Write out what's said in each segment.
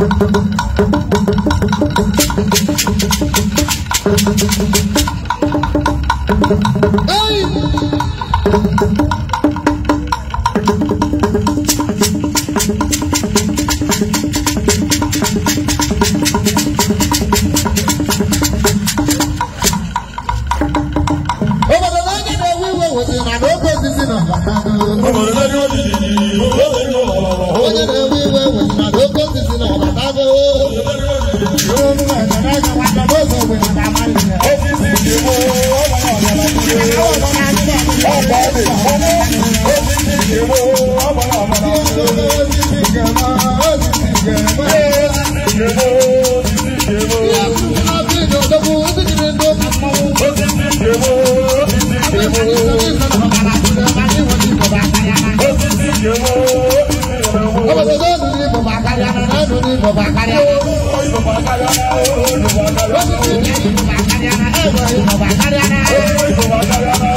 ど こ eh baba karyana eh baba karyana eh baba karyana eh baba karyana eh baba karyana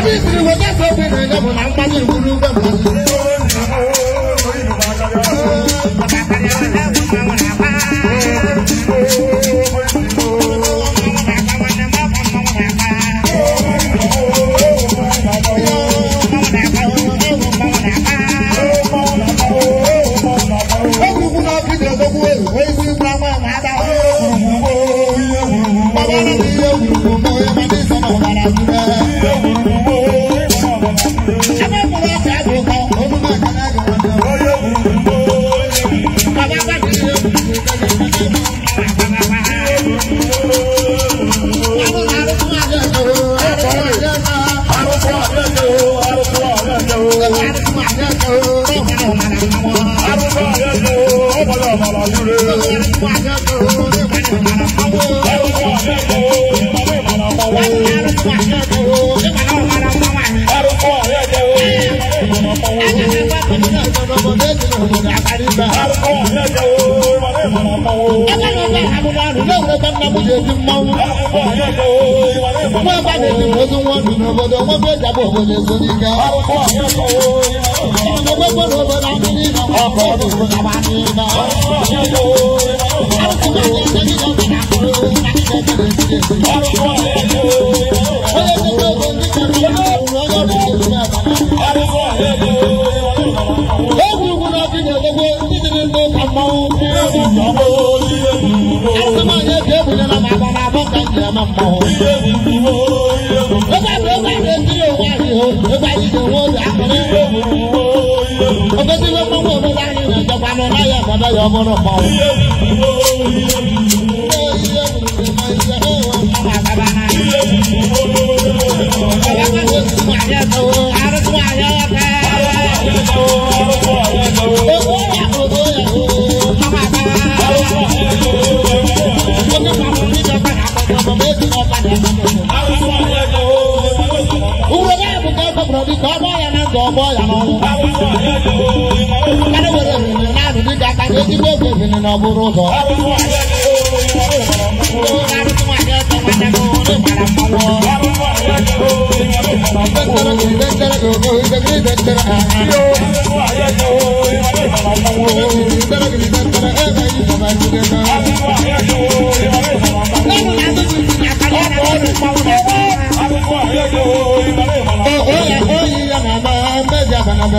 ẹbí ìsìnkú wọ́n jẹ́ sọ́ọ́ fún ìrìnàjò náà ń pàdé ìwúrí ń bẹ̀rù. Baba na mi ye wuru mo ye ma ni sama bara wuru. Wọ́n bá lè ní ojú wọn dùn ọ̀bọ̀dọ̀ wọ́n fẹ́ jábọ̀ òbòdè sórí ga. Ọmọdé gbogbo ló bọ̀ náà ní iná ọkọ̀ ọdún tó náà bá ní iná. Àwọn ọmọdé gbogbo ló bọ̀ náà ní iná ọkọ̀ ọdún tó náà bá ní iná. ni ọmọ mọ. Ilé ìdúró ilé ìdúró. Ó bá ló bá lè kí òun àrè o, ó bá yí ìdòwò àkùnrin. Ilé ìdúró ilé ìdúró. Ó bẹ́ sí ló mọ́wọ́ ló bá rìn ìrìn ìjọba lọ láyé ọ̀kọ́dọ̀ yọ ọmọ náà pọ̀. Ilé ìdúró ilé ìdúró. Ilé ìdúró ilé ìdúró. Arúgbó àyẹ̀wò kẹ́. Arúgbó àyẹ̀wò kẹ́. Owó yàgò owó yàgò. Ọmọ àgbà. Uwe ya bụ ka ọ kpọpụrụ dịka ọgbọ ya na nke ọgbọ ya n'ọnwụ. Mmadụ nwere ebili naanị dịka aka ka ezigbo oge ebili na ọbụrụ ụzọ. Thank you.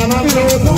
Thank you.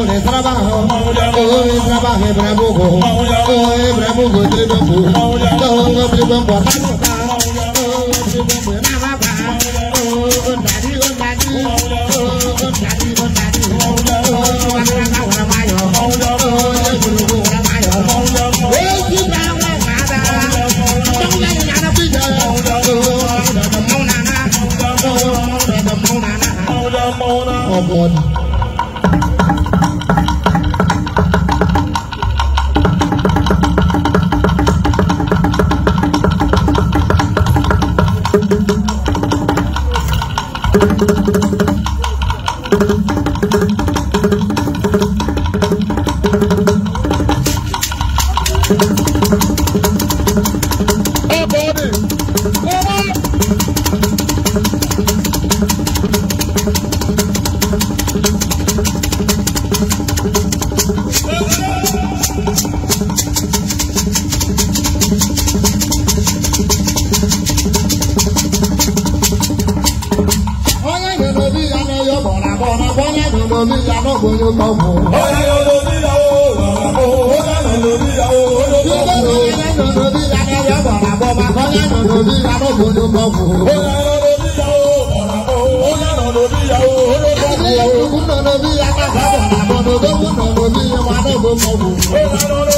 Oye trabajo, oye trabaje bravo, oye bravo, tributo, oye bravo, tributo. bọ́lá mi mo ní ìyàwó mo ní kọ́ mọ́. Ọ̀rẹ́ yóò lo níyàwó bàbá o, ó dáná lo níyàwó ó ló kọ́ mọ́. Ọ̀rẹ́ yóò lo níyàwó bàbá o, bàbá yóò lo níyàwó mo ní kọ́ mọ́. Ọ̀rẹ́ yóò lo níyàwó bàbá o, ó dáná lo níyàwó ó ló kọ́ mọ́. Ẹni yóò kúkú nà lóbi yàtọ̀ bàbá bàbá mo Ọ̀rẹ́ yóò o,